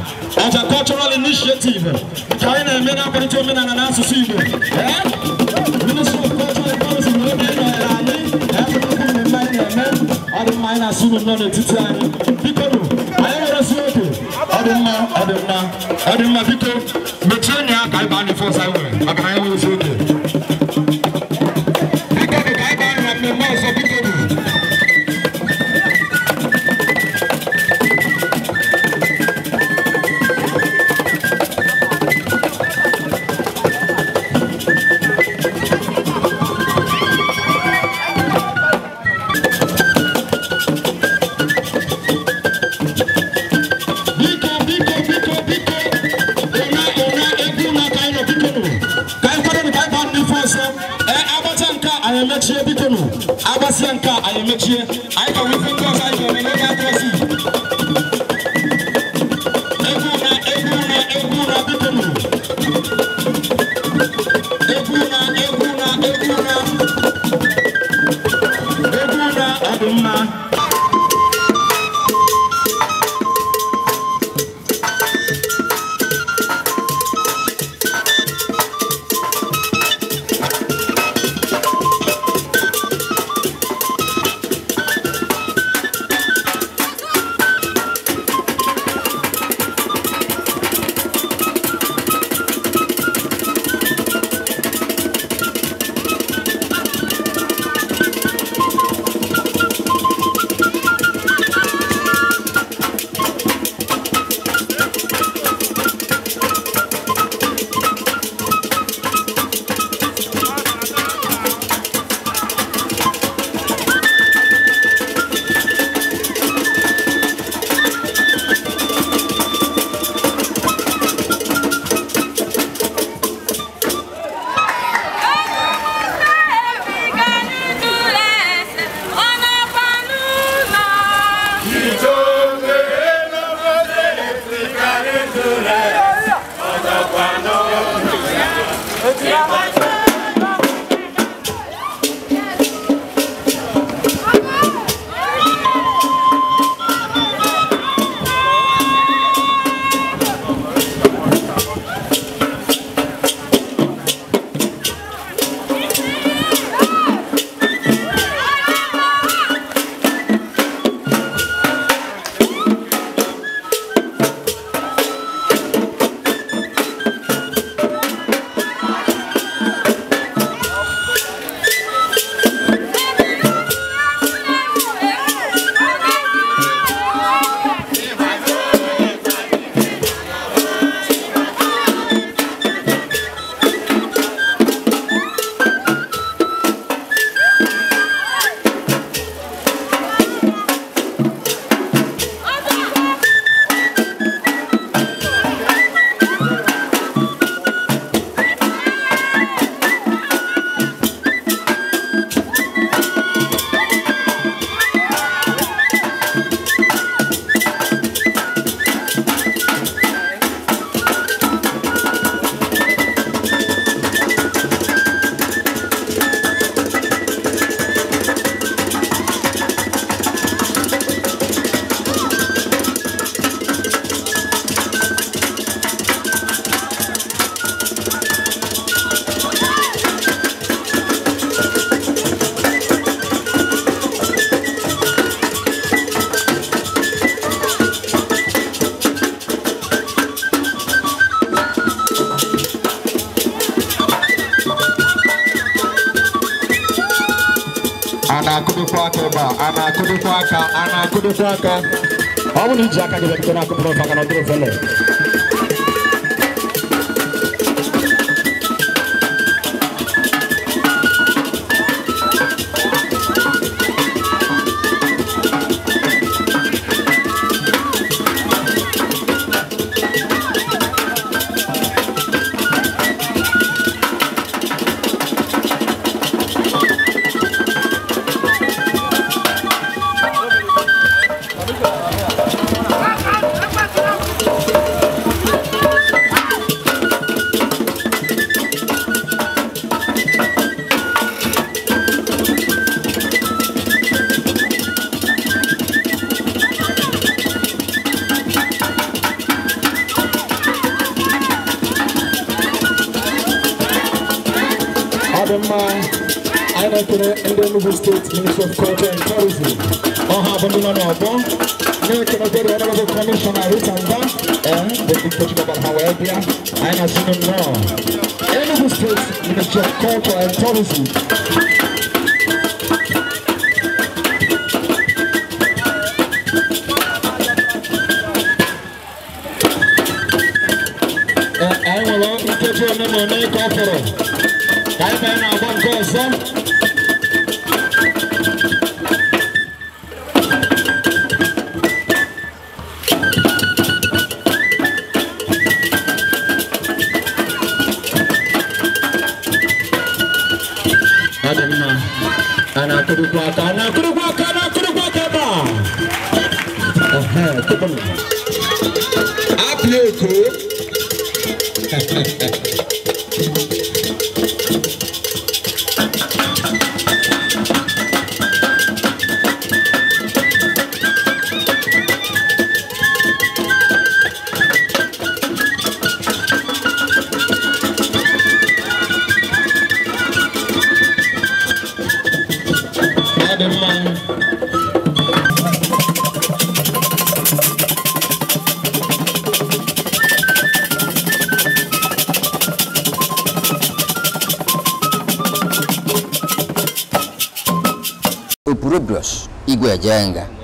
as a cultural initiative nke anyị na-eme na-akwalite omenala na asụsụ Igbo eh? ministry of cultural policy na obi nọnyere anyị na-emetakwu mmemme anyị na-eme ọ dị mma anyị na-asụ unu nọ n'etiti anyị biko nụ anyị weresi oge ọ dị mma ọ dị mma ọ dị mma biko mechie nya ka anyị baa n'ife ọzọ anyị yemekie bitono abasyanka ayemekie aika wifingoka na akụdịkwa aka ebe a na akụdịkwa aka a na akụdịkwa aka ọ bụrụ na iji aka gị bịakọta na-akụpụrụ ọfa ka na ọdịrị ofele Ekene Enugu State Minister of Culture and Tourism. Ọha Abundina na Ọbọ, na-ekene obere Honorable Commissioner Rita Nda, and the Deputy Governor wee bịa, anyị na-asị gị nnọọ. Enugu State Ministry of Culture and Tourism. I'm nwere nkeji ole to ole ka ọ fọrọ ka anyị banye na-agba nke one. Ana kudu kuaka, ana kudu kuaka, ana kudu kuaka ba. Eh, tu pun. Apeleko. Rubrus Igwe Jenga.